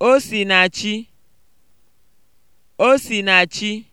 Osinachi Osinachi